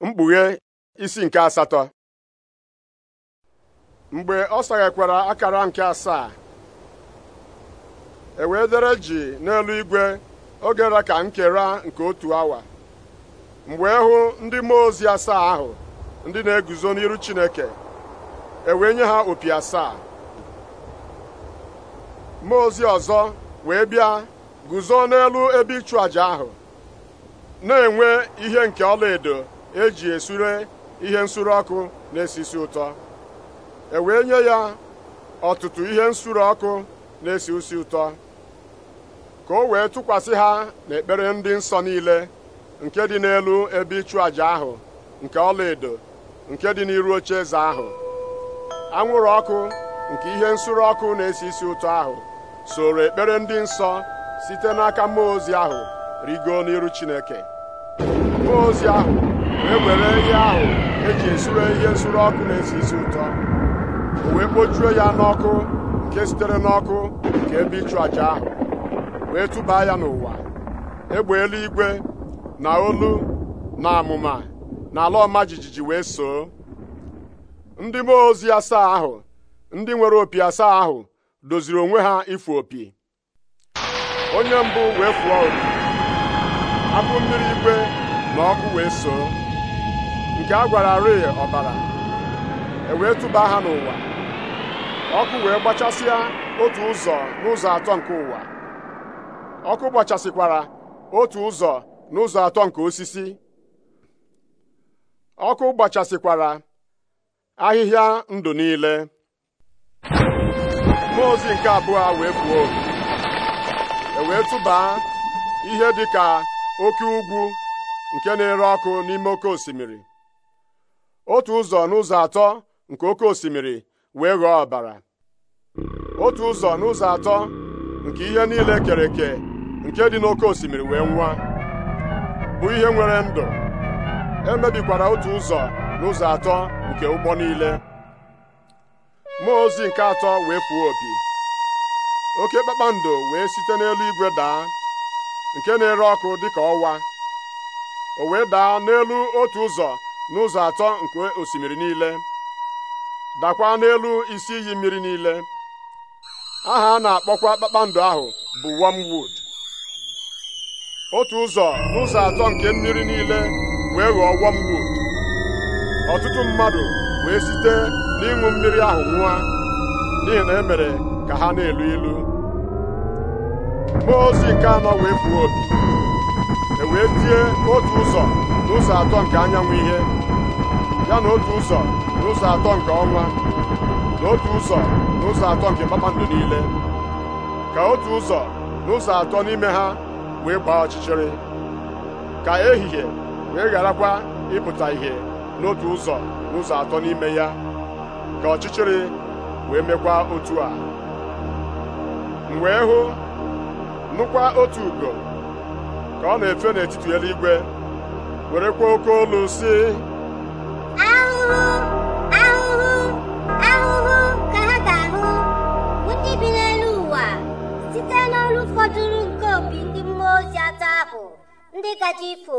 mkpughe isi nke asatọ mgbe ọ saghekwara akara nke asaa ewe dere ji n'elu igwe oge ra ka nkera nke otu awa mgbe e hụ ndị mmụọ ozi asaa ahụ ndị na-eguzo n'iru Chineke ewee nye ha opi asaa mmụọ ozi ọzọ wee bịa guzo n'elu ebe ịchụ àjà ahụ na-enwe ihe nke ọlaedo eji esure ihe nsuru ọkụ na-esi isi ụtọ e wee nye ya ọtụtụ ihe nsuru ọkụ na-esi usi ụtọ ka o wee tụkwasị ha n'ekpere ndị nsọ niile nke dị n'elu ebe ịchụ àjà ahụ nke ọlaedo nke dị n'iru oche eze ahụ anwụrụ ọkụ nke ihe nsure ọkụ na-esi isi ụtọ ahụ soro ekpere ndị nsọ site n'aka mmụọ ozi ahụ rigo n'iru Chineke mmụọ ozi ahụ wee were ihe ahụ eji esure ihe nsure ọkụ na-esi isi ụtọ o wee kpojuo ya n'ọkụ nke sitere n'ọkụ nke ebe ịchụ àjà ahụ wee tụba ya n'ụwa egbe igwe na olu na amụma na ala ọma jijiji wee soo ndị mmụọ ozi asaa ahụ ndị nwere opi asaa ahụ doziri onwe ha ịfụ opi onye mbụ wee fụọ opi afọ mmiri igwe na ọkụ wee soo nke a gwara rịị ọbara e wee tụba ha n'ụwa ọkụ wee gbachasịa otu ụzọ n'ụzọ atọ nke ụwa ọkụ gbachasịkwara otu ụzọ n'ụzọ atọ nke osisi ọkụ gbachasịkwara ahịhịa ndụ niile mmụọ ozi nke abụọ wee pụọ e wee ihe dị ka oke ugwu nke na-ere ọkụ n'ime oke osimiri otu ụzọ n'ụzọ atọ nke oke osimiri wee ghọọ ọbara otu ụzọ n'ụzọ atọ nke ihe niile kere eke nke dị n'oke osimiri wee nwa bụ ihe nwere ndụ emebikwara otu ụzọ n'ụzọ atọ nke ụgbọ niile mmụọ ozi nke atọ wee fuo opi oke kpakpando wee site n'elu igwe daa nke na-ere ọkụ dịka ọwa o wee daa n'elu otu ụzọ n'ụzọ atọ nke osimiri niile dakwa n'elu isi iyi mmiri niile aha a na-akpọkwa kpakpando ahụ bụ wormwood otu ụzọ n'ụzọ atọ nke mmiri niile wee ghọọ wormwood ọtụtụ mmadụ wee site n'ịṅụ mmiri ahụ nwa n'ihi na e mere ka ha na-elu ilu mmụọ ozi nke anọ wee fuo opi wee tie otu ụzọ n'ụzọ atọ nke anyanwụ ihe ya na otu ụzọ n'ụzọ atọ nke ọnwa na otu ụzọ n'ụzọ atọ nke kpakpando niile ka otu ụzọ n'ụzọ atọ n'ime ha wee gbaa ọchịchịrị ka ehihie wee gharakwa ịpụta ihe n'otu ụzọ n'ụzọ atọ n'ime ya ka ọchịchịrị wee mekwa otu a m wee hụ nụkwa otu ugo ọ na-efe n'etiti eluigwe werekwa oke olu si ahụhụ ahụhụ ahụhụ ka ha ga-ahụ ndị bi n'elu ụwa site n'ọrụ fọdụrụ nke opi ndị mmụọ ozi atọ ahụ ndị gaje ifo